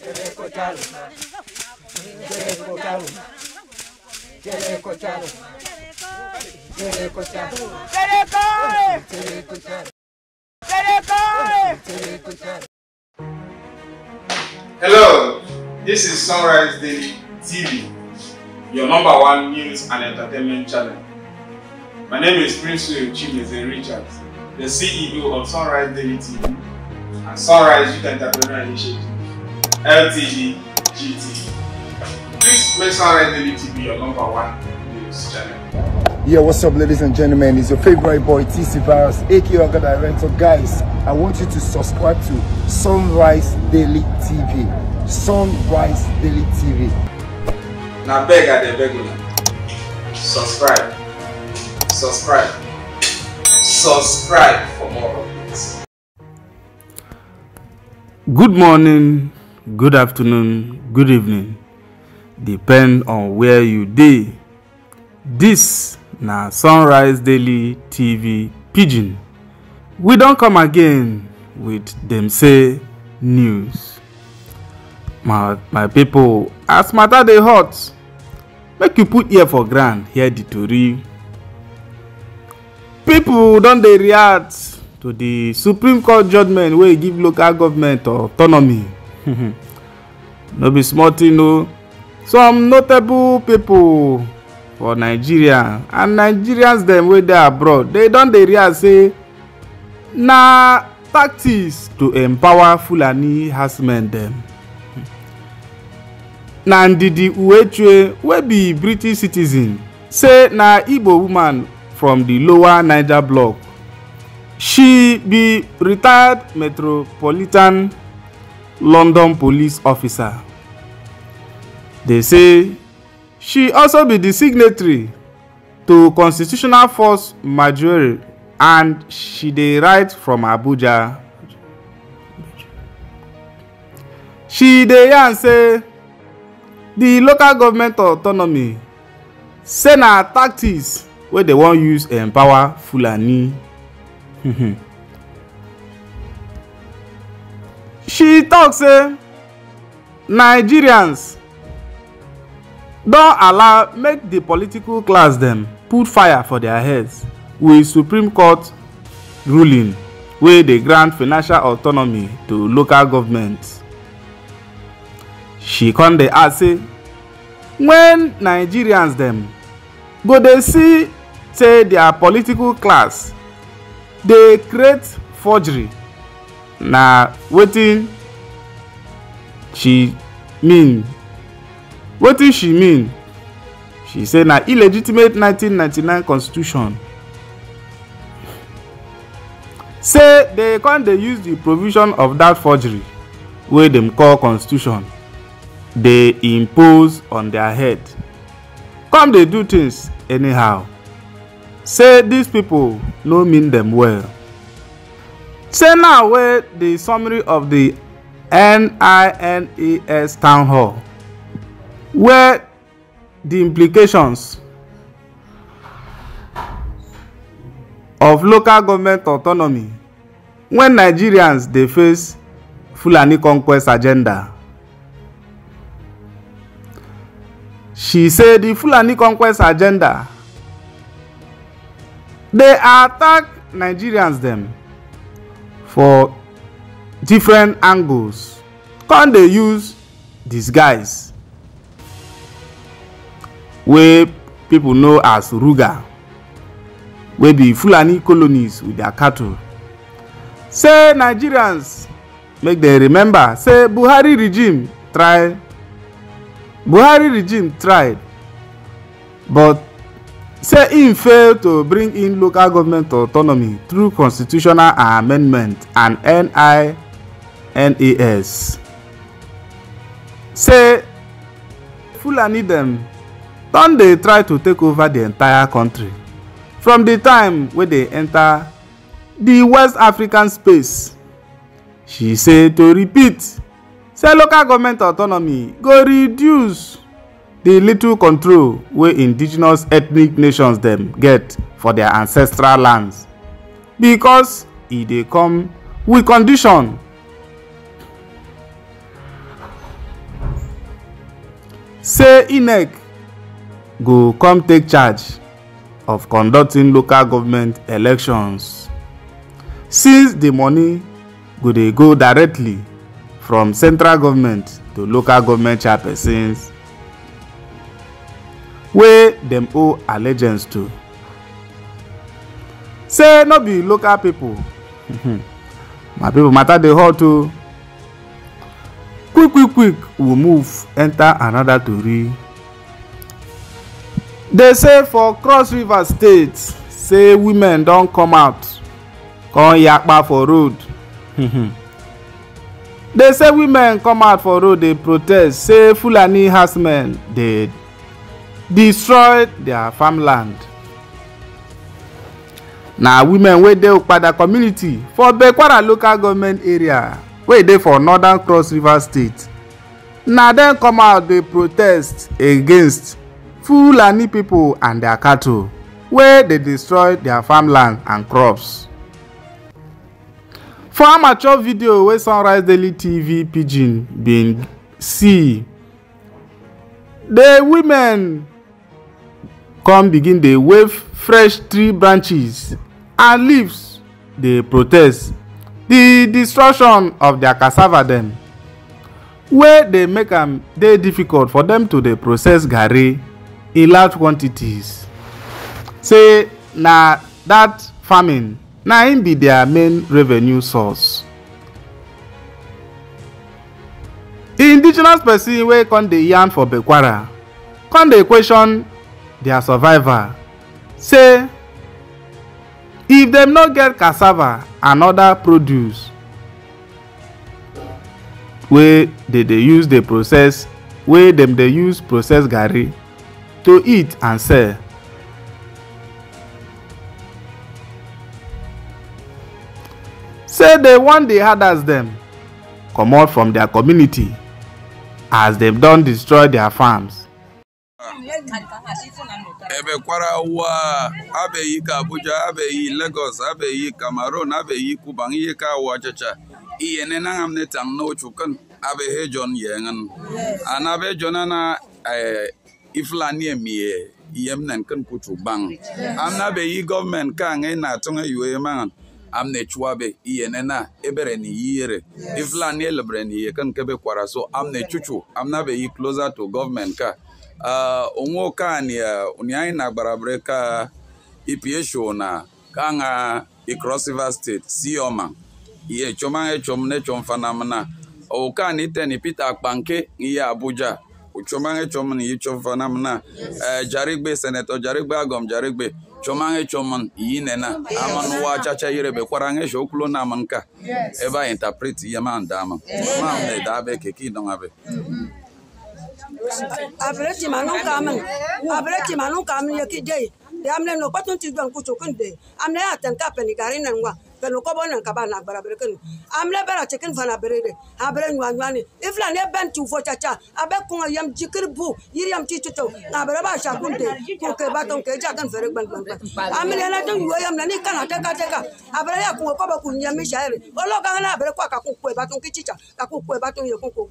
Jericho Jaluma, Jericho Jaluma, Jericho Jaluma, Jericho Jaluma, Jericho, Jericho Jaluma, Jericho, Jericho Jaluma. Hello, this is Sunrise Daily TV, your number one news and entertainment channel. My name is Prince Chimeze Richards, the CEO of Sunrise Daily TV and Sunrise Youth Entrepreneur Initiative. LTD GT. Please make sure LTD TV your number one news channel. Yeah, what's up, ladies and gentlemen? It's your favorite boy, TC Virus, aka Aga Director. Guys, I want you to subscribe to Sunrise Daily TV. Sunrise Daily TV. Now, beg at the beginning. Subscribe. Subscribe. Subscribe for more updates. Good morning, good afternoon good evening depend on where you dey This na sunrise daily tv pidgin we don come again with dem say news my my people, as matter dey hot make you put ear for ground hear the tori People don dey react to the supreme court judgment wey give local government autonomy no be small tin o some notable pipo for nigeria and nigerians dem wey dey abroad dey don dey realize say na tactics to empower fulani herdsmen dem na ndidi uechue wey be british citizen say na igbo woman from di lower niger block. she be retired metropolitan London police officer. They say she also be the signatory to Constitutional Force Majority and she dey write from Abuja. She dey yarn say the local government autonomy say na tactics wey dem wan use empower Fulani. she tok say nigerians don allow make di political class dem put fire for dia heads wit supreme court ruling wey dey grant financial autonomy to local governments she come dey add say wen nigerians dem go dey see say dia political class dey create forgery na wetin she mean wetin she mean she say na illegitimate 1999 constitution say dey come dey use di provision of dat forgery wey dem call constitution dey impose on dia head come dey do tins anyhow say dis pipo no mean dem well say now wey di summary of the nines town hall where the implications of local government autonomy when nigerians dey face fulani conquest agenda she say "The fulani conquest agenda dey attack nigerians dem for different angles come dey use disguise wey people know as ruga wey be fulani colonies with their cattle say nigerians make dem remember say buhari regime try buhari regime tried but say im fail to bring in local government autonomy through constitutional amendment and ninas say fulani dem don dey try to take over di entire kontri from di time wey dey enta di west african space she say to repeat say local government autonomy go reduce The little control wey indigenous ethnic nations dem get for their ancestral lands because e dey come wit condition say inec go come take charge of conducting local government elections since the money go dey go directly from central government to local government chairpersons wey dem owe allegiance to say no be local pipo mm-hmm. my pipo matter dey hot o quick quick quick we move enter another tori dey say for cross river state say women don come out come yakpa for road mm-hmm. dey say women come out for road dey protest say fulani herdsmen dey destroyed their farmland. na women wey dey okpada community for bekwara local government area wey dey for northern cross river state na dem come out dey protest against fulani pipo and their cattle wey dey destroy their farmland and crops. for amateur video wey sunrise daily tv pidgin bin see the women come begin dey wave fresh tree branches and leaves dey protest the destruction of their cassava dem wey dey make am dey difficult for dem to dey process garri in large quantities say na that farming na im be their main revenue source. indigenous person wey come dey yarn for bekwara come dey question their survival say if dem no get cassava and other produce wey dey dey use dey process wey dem dey use process garri to eat and sell say dey wan dey herders dem comot from their community as dem don destroy their farms ebekwara ụwa abeghị ka Abuja abeghị Lagos abeghị Cameroon abeghị kuban ihe ka wa chacha iye ne na ngam ne tang no chukan abe he jon yengan anabe jonana eh, iflani emie yem nan kan kuchu bang amna be yi gọọmenti ka ngai na tunga yue mangan am na-echu-abe ne chuabe iyene na ebere ni yire iflani elebre ni yekan kebe kwara so am ne chuchu amna be yi closer to gọọmenti ka Uh, anyị uh, onye anyị na gbara breka ipsho na kaṅa Cross River State sioma iechoma echom nechom fanamna ụkan iteni Peter Akpanke n'ihe Abuja uchomange chomun yi chomfanamna eh, jarigbe senetọ jarigbe agom jarigbe chomange chomun yi nena aman wa chacha yirebe kwarange shoklo na manka ma interpret yema ndama na ne dabe keki dongabe abireti manum kamin abireti manum kamin yeki dei eh, de amne no patun ti don kucho kunde amne aten kapen garin nan wa bɛn kɔbɔ nan ka ba na gbara bere kenu amle bɛra chicken fana bere de ha bere nyua nyua ni ifla ne bɛn tu fo cha cha abe kunga yam jikir bu yiri yam ti tuto na bere ba sha kunde ko ke ba ton ke ja kan fere gban gban gban amle na don yuo yam na ni kana te ka te ka abere ya kunga kɔbɔ kun yam mi shaire olo ka na bere kwa ka ku ku ba ton ki chicha ka ku ku ba ton ye kun ko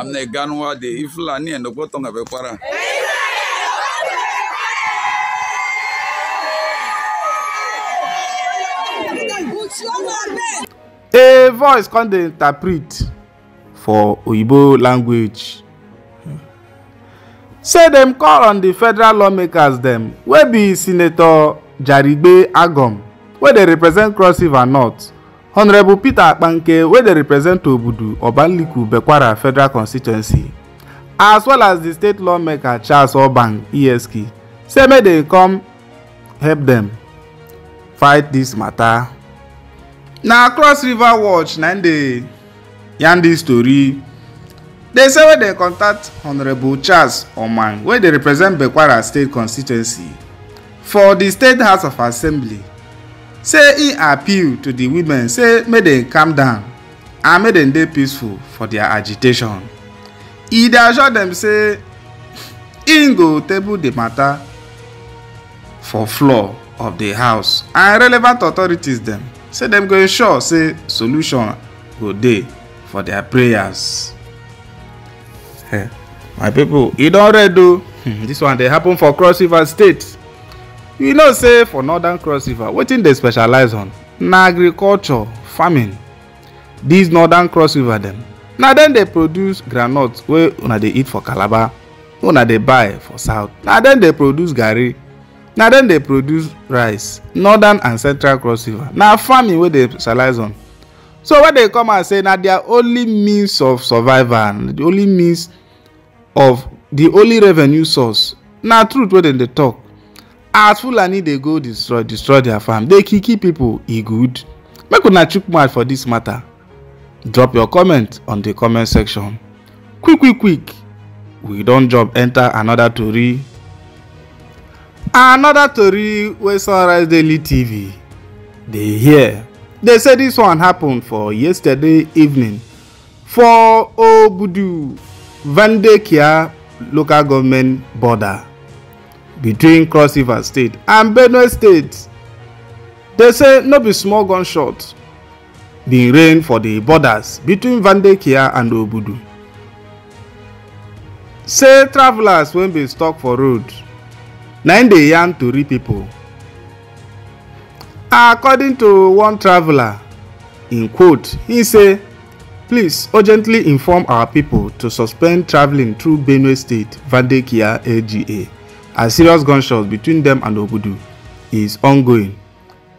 amneganwa de ifulani enokpɔtɔ nga bɛ kpara. a voice come dey interpret for oyibo language say dem call on di federal lawmakers dem wey be senator jarigbe agom wey dey represent cross river north honorable peter akpanke wey dey represent obudu obanliku bekwara federal constituency as well as di state lawmaker charles obang esk say make dem come help dem fight dis mata. na cross river watch na im dey yarn dis tori dey say wey dey contact honourable charles oman wey dey represent bekwara state constituency for di state house of assembly say im appeal to di women say make dem calm down and make dem dey peaceful for dia agitation e dey assure dem say im go table di mata for floor of di house and relevant authorities dem say dem go ensure say solution go dey for dia prayers. Hey, eh, my pipo e don red o dis hmm, one dey happen for cross river state you know say for northern cross river wetin dey specialize on na agriculture farming dis northern cross river dem na dem dey produce groundnut wey una dey eat for calabar wey una dey buy for south na dem dey produce garri na dem dey produce rice northern and central cross river na farming wey dey specialize on so when they come out say na their only means of survival the only means of the only revenue source na truth wey dem dey talk as fulani dey go destroy destroy their farm dey kill kill people e good make una chook mouth for this matter drop your comment on the comment section quick quick quick we don jump enter another tori another tori wey sunrise daily tv dey hear dey say this one happen for yesterday evening for obudu vandekia local government border between cross river state and benue state dey say no be small gunshot bin rain for di borders between vandekia and obudu say travellers wey bin stop for road na im dey yarn tori pipo according to one traveller in quote im say please urgently inform our pipo to suspend travelling through benue state vandekia lga as serious gunshots between them and Obudu is ongoing.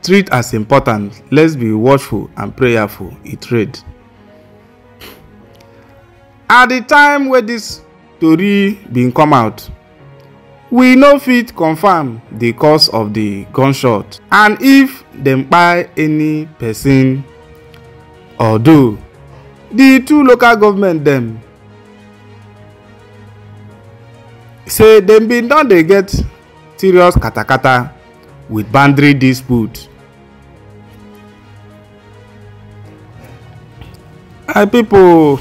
Treat as important, let's be watchful and prayerful, it read. At the time where this story bin come out, we no fit confirm the cause of the gunshot and if them kpai any person or do the two local government them. say dem bin don dey get serious katakata wit boundary dispute. my pipo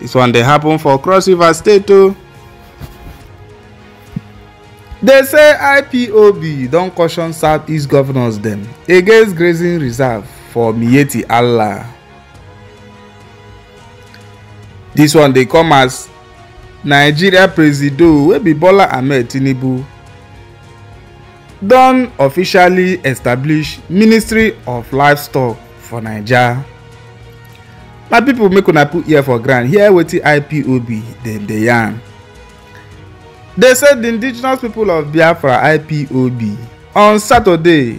dis one dey happen for cross river state o. Oh. dey say ipob don caution southeast governors dem against grazing reserve for miyetti allah. dis one dey come as nigeria presido wey be bola ahmed tinubu don officially establish ministry of livestock for naija my pipo make una put ear for ground hear wetin ipob dem dey yarn dey say di indigenous people of biafra ipob on saturday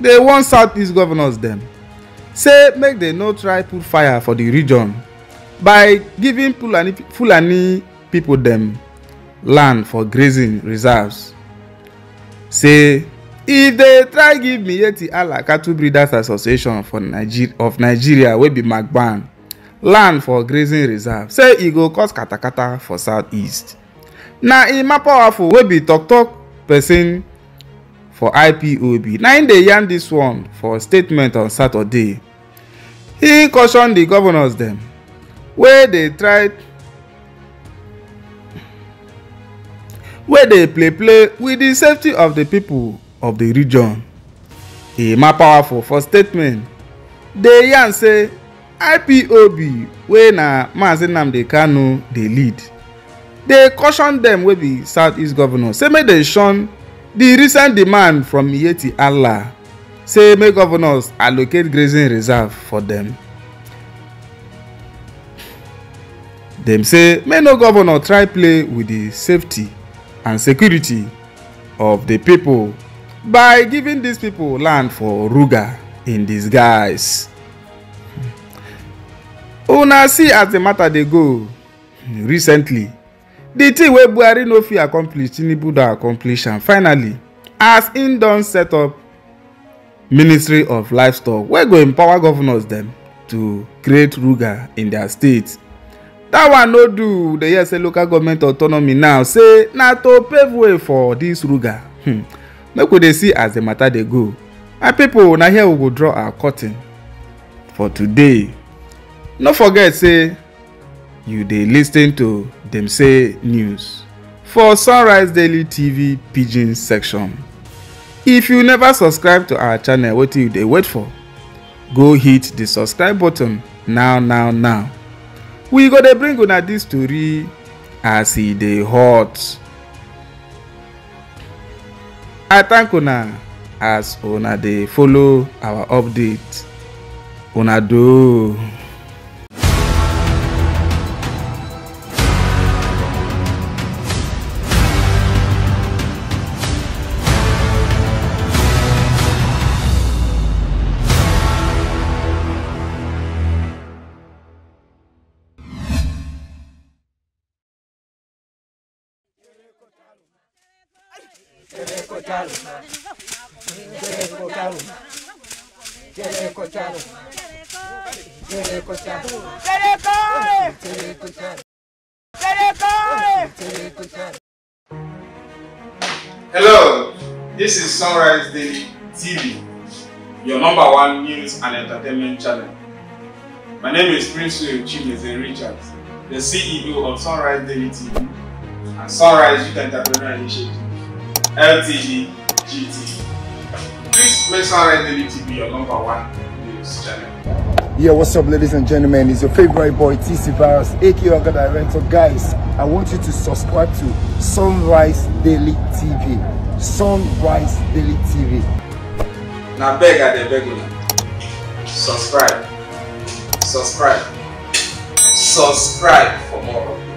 dey warn southeast governors dem say make dem no try put fire for di region by giving fulani fulani people dem land for grazing reserves say if e dey try give miyetti Ala cattle breeders association for nigeria of nigeria wey be magban land for grazing reserve say e go cause katakata for southeast na emma powerful wey be tok-tok pesin for ipob na im e dey yarn dis one for statement on saturday im caution di governors dem wey dey try wey dey play play wit di safety of di pipo of di region. emma powerful for statement dey yarn say ipob wey na maazị nnamdi kanu dey lead dey caution dem wey be southeast govnor say make dem shun di recent demand from yeti allah say make governors allocate grazing reserve for dem. dem say make no governor try play wit di safety and security of the people by giving these people land for Ruga in disguise. Una oh, see as the matter dey go recently. The thing wey Buhari no fit accomplish Tinubu don accomplish am finally as im don set up Ministry of Livestock wey go empower governors dem to create Ruga in their state dat one no do dey hear say local government autonomy now say na to pave way for this ruga hmm. make we dey see as the matter dey go my people, na here we go draw our curtain for today no forget say you dey lis ten to dem say news for sunrise daily tv pidgin section if you never subscribe to our channel wetin you dey wait for go hit the subscribe button now now now we go dey bring una dis tori as e dey hot i thank una as una dey follow our update una doh. Hello, this is Sunrise Daily TV, your number one news and entertainment channel. My name is Prince Chimeze Richards, the CEO of Sunrise Daily TV and Sunrise Youth Entrepreneur Initiative. LTD GT. Please make sure Red TV your number one news channel. Yeah, what's up, ladies and gentlemen? It's your favorite boy, TC Virus, aka Aga Director. Guys, I want you to subscribe to Sunrise Daily TV. Sunrise Daily TV. Now, beg at the beginning. Subscribe. Subscribe. Subscribe for more.